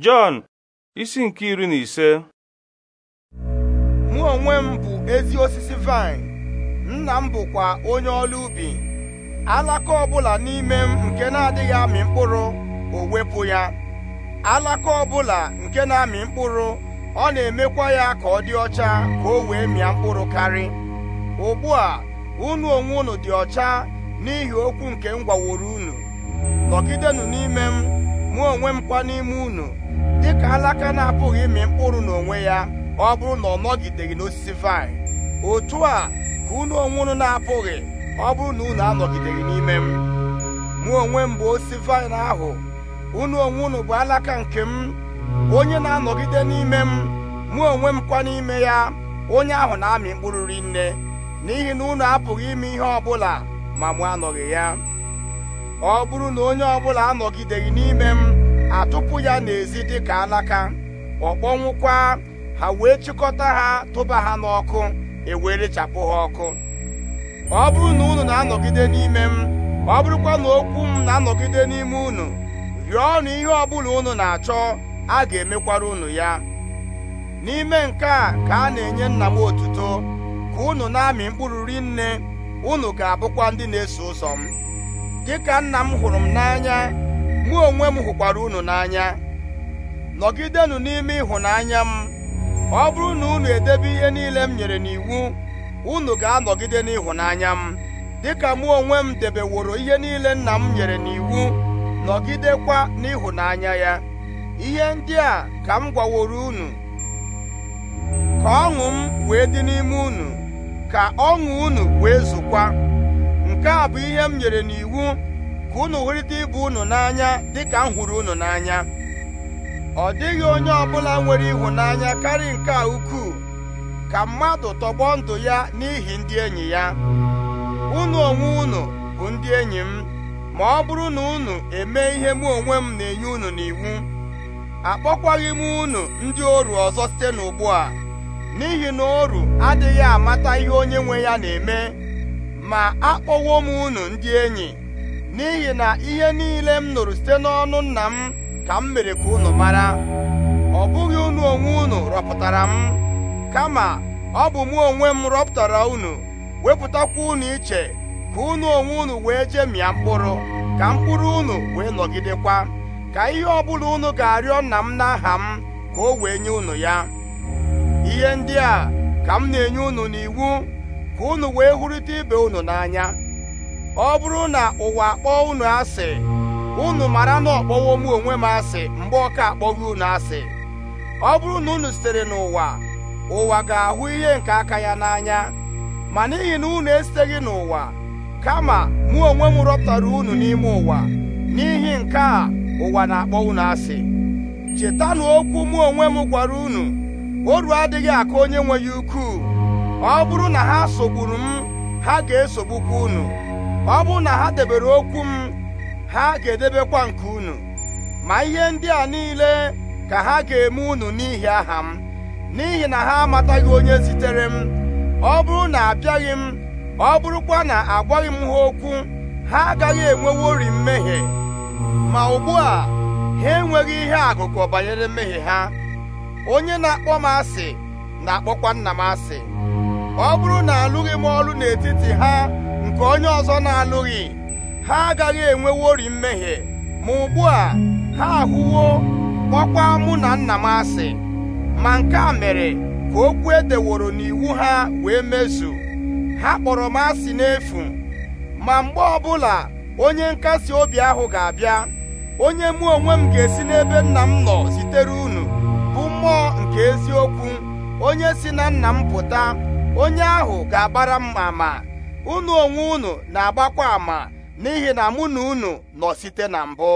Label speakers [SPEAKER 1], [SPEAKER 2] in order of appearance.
[SPEAKER 1] Jọn isi nke iri na ise mụ onwe m bụ ezi osisi vaịn nna m bụkwa onye ọlụ ubi alaka ọbụla n'ime m nke na-adịghị amị mkpụrụ o wepụ ya alaka ọbụla nke na-amị mkpụrụ ọ na-emekwa ya ka ọ dị ọcha ka o wee mịa mkpụrụ karị ugbu a unu onwe unu dị ọcha n'ihi okwu nke m gwaworo unu nọgidenụ n'ime m mụ onwe m kwa n'ime unu dịka alaka na-apụghị ịmị mkpụrụ n'onwe ya ọ bụrụ na ọ nọgideghị n'osisi vaịn otu a ka unu onwe unu na-apụghị ọ bụrụ na unu anọgideghị n'ime m mụ onwe m bụ osisi vaịn ahụ unu onwe unu bụ alaka nke m onye na-anọgide n'ime m mụ onwe m kwa n'ime ya onye ahụ na-amị mkpụrụ rinne n'ihi na unu apụghị ime ihe ọ bụla ma mụ anọghị ya ọ bụrụ na onye ọbụla anọgideghị n'ime m atụpụ ya n'ezi dịka alaka ọ kpọnwụkwa ha wee chịkọta ha tụba ha n'ọkụ ewerechapụ ha ọkụ ọ bụrụ na unu na-anọgide n'ime m ọ bụrụkwa na okwu m na-anọgide n'ime unu na ihe ọ bụla unu na-achọ a ga-emekwara unu ya n'ime nke a ka a na-enye nna m otuto ka unu na-amị mkpụrụ rinne unu ga-abụkwa ndị na-eso ụzọ m dịka nna m hụrụ m n'anya mụ onwe m hụkwara unu n'anya nọgidenụ n'ime ịhụnanya m ọ bụrụ na unu edebe ihe niile m nyere n'iwu unu ga-anọgide n'ịhụnanya m dịka mụ onwe m debeworo ihe niile nna m nyere n'iwu nọgidekwa n'ịhụnanya ya ihe ndị a ka m gwaworo unu ka ọṅụ m wee dị n'ime unu ka ọṅụ unu wee zụkwa nke a bụ ihe m nyere n'iwu ka unu hụrịta ibe unu n'anya dịka m hụrụ unu n'anya ọ dịghị onye ọbụla nwere ịhụnanya karịa nke a ukwuu ka mmadụ tọgbọ ndụ ya n'ihi ndị enyi ya unu onwe unu bụ ndị enyi m ma ọ bụrụ na unu eme ihe mụ onwe m na-enye unu n'iwu akpọkwaghị m unu ndị oru ọzọ site n'ugbu a n'ihi na oru adịghị amata ihe onye nwe ya na-eme ma akpọwo m unu ndị enyi n'ihi na ihe niile m nụrụ site n'ọnụ nna m ka m mere ka unu mara ọ bụghị unu onwe unu rọpụtara m kama ọ bụ mụ onwe m rọpụtara unu wepụtakwa unu iche ka unu onwe unu wee jemịa mkpụrụ ka mkpụrụ unu wee nọgidekwa ka ihe ọbụla unu ga-arịọ nna m n'aha m ka o wee nye unu ya ihe ndị a ka m na-enye unu n'iwu ka unu wee hụrịta ibe unu n'anya ọ bụrụ na ụwa akpọọ unu asị unu mara na ọkpọwo mụ onwe m asị mgbe ọka akpọghị unu asị ọ bụrụ na unu sitere n'ụwa ụwa ga-ahụ ihe nke aka ya n'anya ma n'ihi na unu esiteghị n'ụwa kama mụ onwe m rọpụtara unu n'ime ụwa n'ihi nke a ụwa na-akpọ unu asị chetanụ okwu mụ onwe m gwara unu oru adịghị aka onye nwe ya ukwuu ọ bụrụ na ha sogburu m ha ga-esogbukwa unu ọ bụrụ na ha debere okwu m ha ga-edebekwa nke unu ma ihe ndị a niile ka ha ga-eme unu n'ihi aha m n'ihi na ha amataghị onye zitere m ọ bụrụ na abịaghị m ọ bụrụkwa na agwaghị m ha okwu ha agaghị ori mmehie ma ugbu a ha enweghị ihe agụkọ banyere mmehie ha onye na-akpọ m asị na-akpọkwa nna m asị ọ bụrụ na alụghị m ọrụ n'etiti ha nke onye ọzọ na-alụghị ha agaghị enwewori mmehie ma ugbu a ha ahụwo kpọkwa mụ na nna m asị ma nke a mere ka okwu edeworo n'iwu ha wee mezu ha kpọrọ m asị n'efu ma mgbe ọbụla onye nkasi obi ahụ ga-abịa onye mụ onwe m ga-esi n'ebe nna m nọ zitere unu bụ mmụọ nke eziokwu onye si na nna m pụta onye ahụ ga-agbara mma ma ụnụ onwe unu na-agbakwa ama n'ihi na mụ na unu nọ site na mbụ